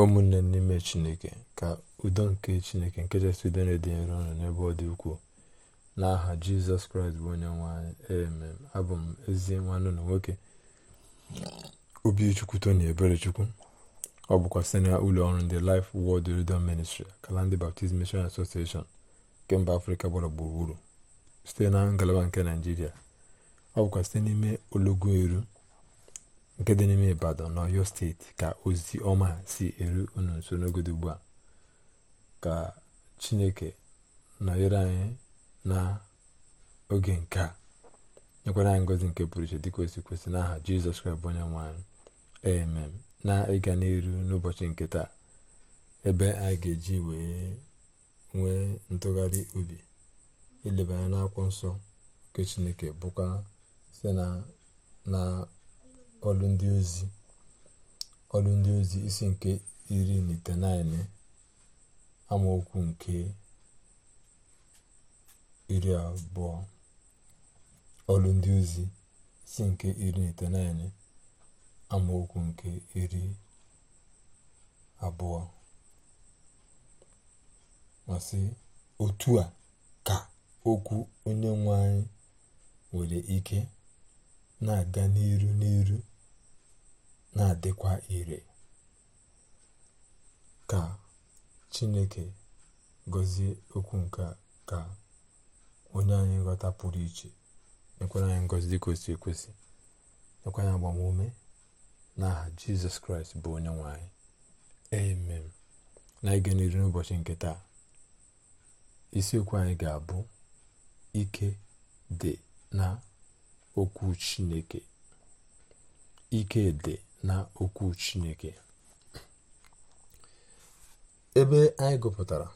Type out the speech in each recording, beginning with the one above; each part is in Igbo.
ụmụnne n'ime chineke ka udo nke chineke nke kachasị udo na-ede ọnụ n'ebe ọ dị ukwuu n'aha jizọs kraịst bụ onye nwanyị emem abụ m ezi nwanne na nwoke obichukwu tony eberechukwu ọ bụkwa site na ụlọ ọrụ ndị Life Word Redemption Ministry kala ndị Baptist Mission Association nke mba afrịka gbara gburugburu site na ngalaba nke naijiria ọ bụkwa site n'ime ologo eru nke dị n'ime ibadan na ọyọ steeti ka ozi ọma si eru unu nso n'ogodo ugbu a ka chineke nọnyere anyị na oge nke a nyekwara anyị ngozi nke pụrụ iche dịka kwesị kwesị n'aha jizọs kraịst bụ onye nwe na ịga n'iru n'ụbọchị nke taa ebe anyị ga-eji wee nwee ntụgharị obi ileba anya n'akwụkwọ nsọ nke chineke bụkwa site na ọlụ ndị ozi ọlụ ndị ozi isi nke iri na itenaịnị amaokwu nke iri abụọ ọlụ ndị ozi isi nke iri na itenaịnị amaokwu nke iri abụọ masị otu a ka okwu onye nwe anyị nwere ike na-aga n'iru n'iru na-adịkwa ire ka chineke gọzie okwu nke ka onye anyị nghọta pụrụ iche nyekwara anyị ngọzi dịka ekwesị nyekwa anyị agbamume n'aha jizọs kraịst bụ onye nwanyị. amen na ịga n'iru n'ụbọchị nke taa isiokwu anyị ga-abụ ike dị na okwu chineke ike dị na okwu chineke ebe anyị gụpụtara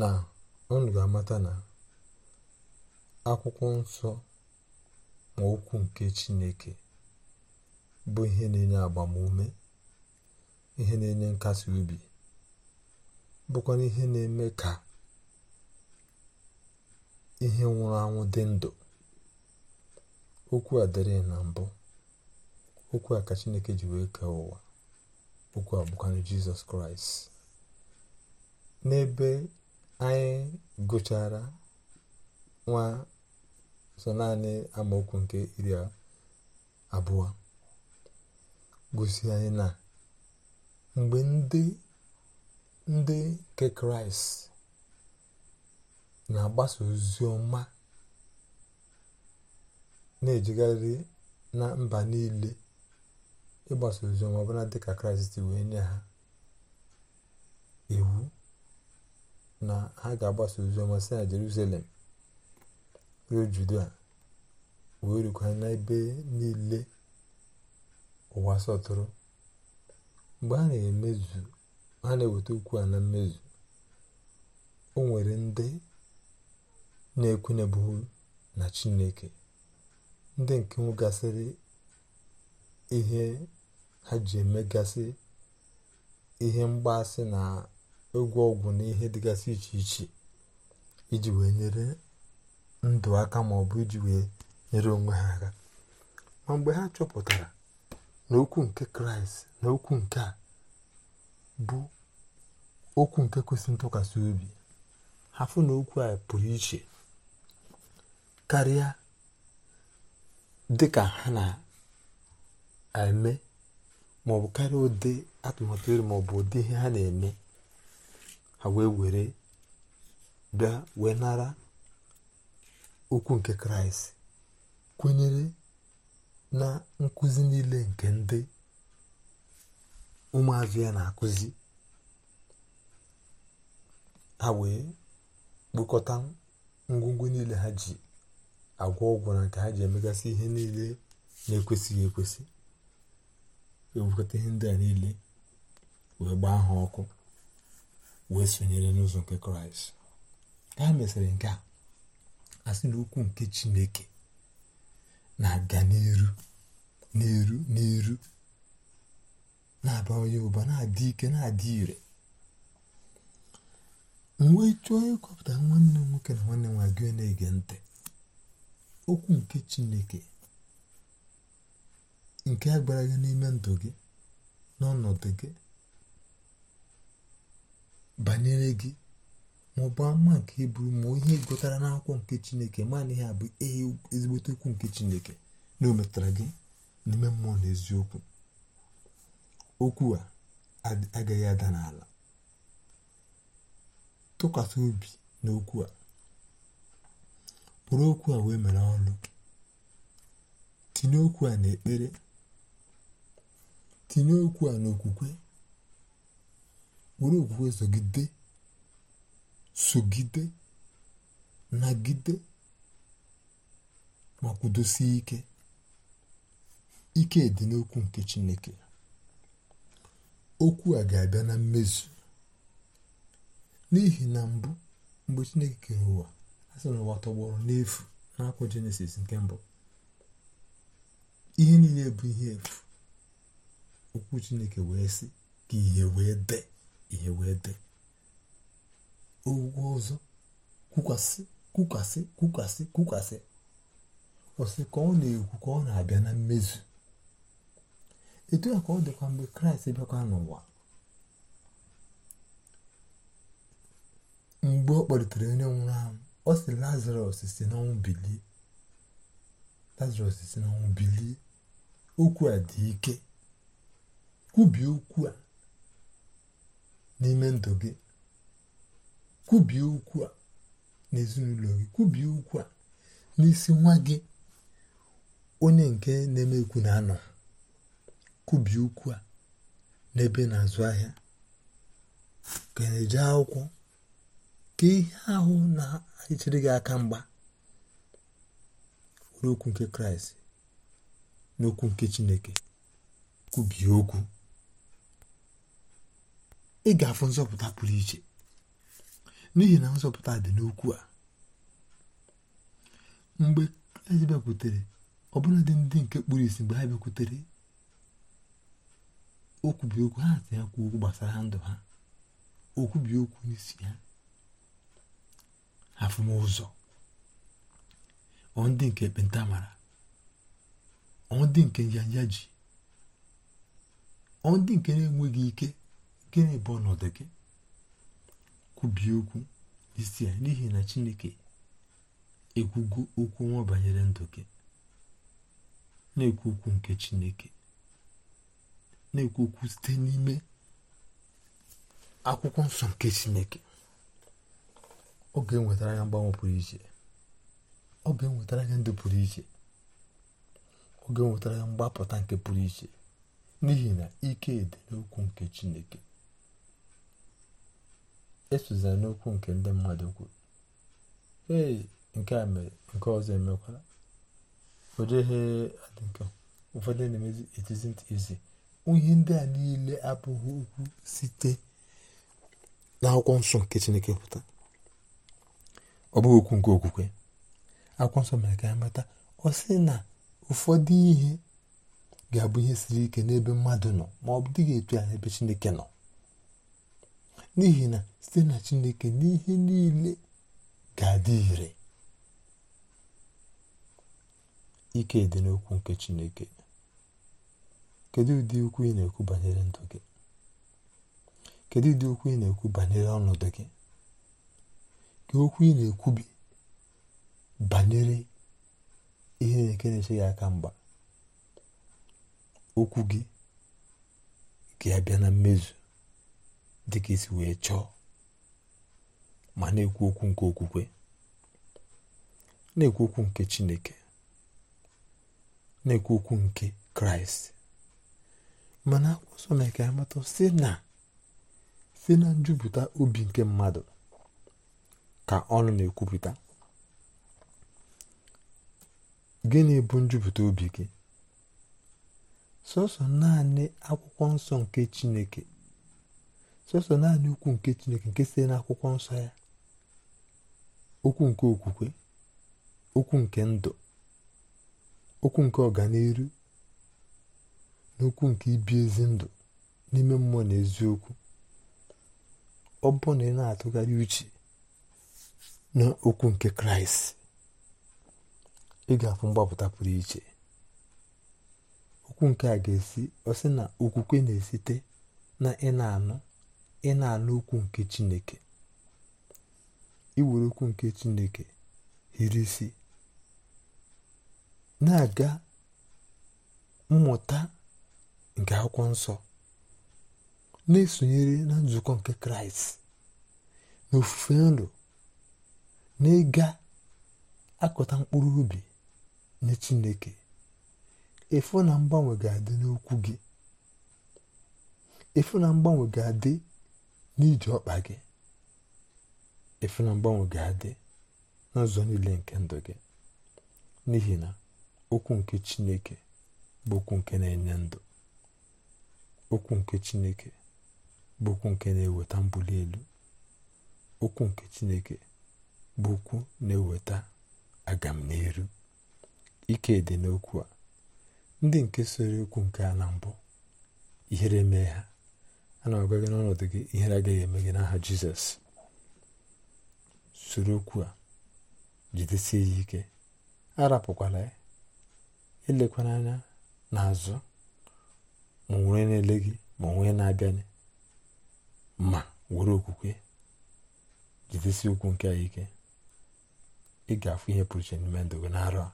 na unu ga-amata na akwụkwọ nsọ ma okwu nke chineke bụ ihe na-enye agbamume ihe na-enye nkasi obi bụkwa ihe na-eme ka ihe nwụrụ anwụ dị ndụ okwu a dịrị na mbụ okwu a ka chineke ji wee kee ụwa okwu a bụkwanụ jizọs kraịst n'ebe anyị gụchara nwa so naanị amaokwu nke iri abụọ gosi anyị na mgbe ndị ndị nke kraịst na-agbasa ozi ọma na-ejegharị na mba niile ịgbasa oziọma ọbụla dị ka kraịst wee nye ha iwu na ha ga-agbasa oziọma si na jerusalem ruo judea wee rukwa n'ebe niile ụwa sọtụrụ mgbe a na-emezu ha na-eweta okwu a na mmezu o nwere ndị na-ekwenyebughị na chineke ndị nke nwegasịrị ihe ha ji emegasị ihe mgbaasị na egwu ọgwụ na ihe dịgasị iche iche iji wee nyere ndụ aka maọbụ iji wee nyere onwe ha aka ma mgbe ha chọpụtara na okwu nke kraịst na okwu nke a bụ okwu nke kwesịrị ntụkwasị obi ha fụ na okwu a pụrụ iche karịa dịka ha na eme maọbụ karịa ụdị atụmatụ eri maọbụ ụdị ihe ha na-eme ha wee were bịa wee nara okwu nke kraịst kwenyere na nkụzi niile nke ndị ụmụazụ ya na-akụzi ha wee kpokọta ngwongwo niile ha ji agwọ ọgwụ na nke ha ji emegasị ihe niile na-ekwesịghị ekwesị ga-ewekọta ndị a niile wee gbaa ha ọkụ wee sonyere n'ụzọ nke kraịst ka ha mesịrị nke a asị na okwu nke chineke na-aga n'iru n'iru n'iru na-abawanye ụba na-adị ike na-adị ire mgbe chọọ ịkọpụta nwanne m nwoke na nwanne nwa gị na-ege ntị okwu nke chineke nke a gwara gị n'ime ndụ gị n'ọnọdụ gị banyere gị ma ọ bụ ama nke iburu ma ihe gụtara n'akwụkwọ nke chineke mana ihe a bụ ezigbote okwu nke chineke na o metara gị n'ime mmụọ na eziokwu okwu a agaghị ada n'ala tụkwasị obi n'okwu a kpụrụ okwu a wee mere ọnụ tinye okwu a n'ekpere tinye okwu a n'okwukwe were okwukwe zogide sogide nagide ma kwudosie ike ike dị n'okwu nke Chineke okwu a ga-abịa na mmezu n'ihi na mbụ mgbe Chineke kere ụwa a sị na ụwa tọgbọrọ n'efu n'akwụkwọ Jenesis nke mbụ ihe niile bụ ihe efu okwu chineke wee sị ka ihe wee dee ihe wee dee ogwu ọzọ kwukwasị kwukwasị kwukwasị kwukwasị ọsị ka ọ na-ekwu ka ọ na-abịa na mmezu etu a ka ọ dịkwa mgbe kraịst bịakwa n'ụwa mgbe ọ kpọlitere onye nwụrụ ahụ ọ sị lazarus si n'ọnwụ bilie lazarus si n'ọnwụ bilie okwu a dị ike kwubie okwu a n'ime ndụ gị kwubie okwu a n'ezinụlọ gị kwubie okwu a n'isi nwa gị onye nke na-eme ekwu na-anọ kwubie okwu a n'ebe na-azụ ahịa ka na-eje akwụkwọ ka ihe ahụ na-echere gị aka mgba n'okwu nke kraịst n'okwu nke chineke kwubie okwu ị ga-afụ nzọpụta pụrụ iche n'ihi na nzọpụta dị n'okwu a mgbe ezi bịakwutere dị ndị nke kpuru isi mgbe ha bịakwutere okwubi okwu ha si ya kwuo okwu gbasara ndụ ha okwubi okwu n'isi ha afụmụzọ ọ nke ekpenta mara ọ ndị nke njanja ji ọ ndị nke na-enweghị ike gịnị bụ ọnọdụ gị kwubie okwu isi ya n'ihi na chineke ekwugo okwu nwa banyere ndụ gị na-ekwu okwu nke chineke na-ekwu okwu site n'ime akwụkwọ nsọ nke chineke ọ ga-enwetara ya mgbanwe pụrụ iche ọ ga-enwetara ya ndụ pụrụ iche ọ ga-enwetara ya mgbapụta nke pụrụ iche n'ihi na ike dị n'okwu nke chineke esozila n'okwu nke ndị mmadụ kwuru ee nke a mere nke ọzọ emekwala nke ụfọdụ na-emezi etizi isn't easy ihe ndị a niile abụghị okwu site n'akwụkwọ nsọ nke chineke pụta ọ bụghị okwu nke okwukwe akwụkwọ nsọ mere ka ya mata ọ sị na ụfọdụ ihe ga-abụ ihe siri ike n'ebe mmadụ nọ ma ọ bụ dịghị etu ya n'ebe chineke nọ n'ihi na site na chineke n'ihe niile ga-adị ire ike dị n'okwu nke chineke kedu ụdị ukwu ị na-ekwu banyere ndụ gị kedu ụdị ukwu ị na-ekwu banyere ọnọdụ gị ka okwu ị na-ekwubi banyere ihe na eche gị aka mgba okwu gị ga-abịa na mmezu dịka isi wee chọọ ma na-ekwu okwu nke okwukwe na-ekwu okwu nke chineke na-ekwu okwu nke kraịst mana akwụkwọ na mee ka amata si na si na njupụta obi nke mmadụ ka ọnụ na-ekwupụta gịnị bụ njupụta obi gị sọsọ naanị akwụkwọ nsọ nke chineke sọsọ naanị ukwu nke Chineke nke si n'akwụkwọ nsọ ya okwu nke okwukwe okwu nke ndụ okwu nke ọganiru na okwu nke ibi ezi ndụ n'ime mmụọ na eziokwu ọ bụ na ị na-atụgharị uche na okwu nke kraịst ị ga-afụ mgbapụta pụrụ iche okwu nke a ga-esi ọ sị na okwukwe na-esite na ị na-anụ ị na-anụ okwu nke Chineke iwere okwu nke Chineke hiri isi na-aga mmụta nke akwụkwọ nsọ na-esonyere na nzukọ nke kraịst na ofufe nrọ na ịga akụta mkpụrụ ubi nye chineke efu na mgbanwe ga-adị n'okwu gị efu na mgbanwe ga-adị n'iji ọkpa gị efe na mgbanwe ga-adị n'ụzọ niile nke ndụ gị n'ihi na okwu nke chineke bụ okwu nke na-enye ndụ okwu nke chineke bụ okwu nke na-eweta mbuli elu okwu nke chineke bụ okwu na-eweta agam n'elu ike dị n'okwu a ndị nke soro okwu nke a mbụ ihere mee ha E. na agwa gị n'ọnọdụ gị ihere agaghị eme gị n'aha jizọs soro okwu a jidesie ya ike arapụkwala ya elekwana anya n'azụ ma onwe na-ele gị ma onwe na abịa ma were okwukwe jidesie okwu nke a ike ị ga-afụ ihe pụrụ iche n'ime ndụ gị n'arọ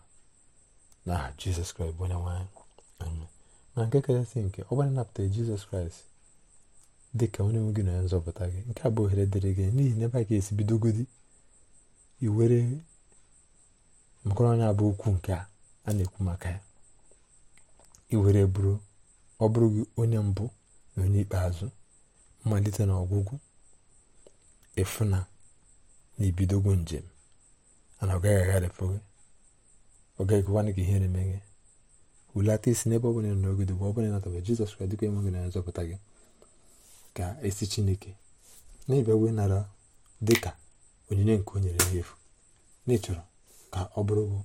n'aha jizọs kraịst bụ onye nwanyị. na nke kachasị nke ọ gbara napụtara jizọs kraịst dị ka onye nwe gị na nzọpụta gị nke a bụ ohere dịrị gị n'ihi na ebe a ga-esi bidogodi iwere anya bụ okwu nke a na-ekwu maka ya iwere bụrụ ọ bụrụ gị onye mbụ na onye ikpeazụ mmalite na ọgwụgwụ efuna na ibidogo njem ana ọ gaghị agharịpụ gị ọ gaghị ekwana gị ihere emeghe wulata isi n'ebe ọ bụla nọ n'ogodo bụ ọ bụla ịnatabe Jizọs Kraịst dịka enwe gị na nzọpụta gị ga-esi chineke na-abịa wee nara dị ka onyinye nke o nyere n'efu n'ịchọrọ ka ọ bụrụ bụ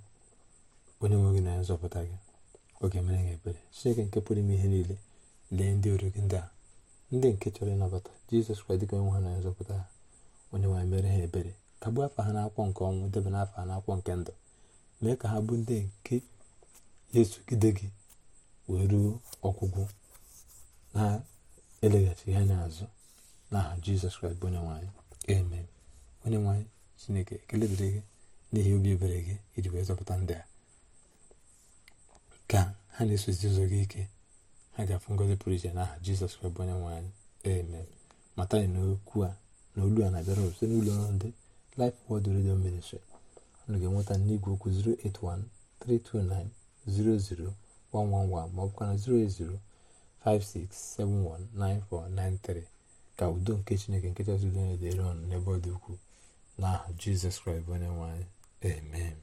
onye nwe gị na nzọpụta gị oge ga-emere ebere chineke nke pụrụ ime ihe niile lee ndị ori gị ndị a ndị nke chọrọ ịnabata jizọs kwa dịka onye nwe ha na nzọpụta ha onye nwe mere ha ebere ka gbuo afọ ha n'akwụkwọ nke ọnwụ debe n'afọ ha n'akwụkwọ nke ndụ mee ka ha bụ ndị nke yesu esogide gị wee ruo ọgwụgwụ na eleghachi ihe anya azụ n'aha jizọs kraịst bụ onye nwanyị amen onye nwanyị chineke ekele dịrị gị n'ihi obi ebere gị iji wee zọpụta ndị a ka ha na-esozi ụzọ gị ike ha ga-afụ ngozi pụrụ iche n'aha jizọs kraịst bụ onye nwanyị amen mata anyị n'okwu a na olu a na-abịara site n'ụlọ ọrụ ndị Life Word redio Ministry unu ga-enweta n'igwe okwu 081 329 00 111 ma ọ bụkwa na 080 56719493 ka udo nke chineke nke chineke udo ọnụ n'ebe ọ dị ukwuu n'aha jizọs kraịst bụ onye amen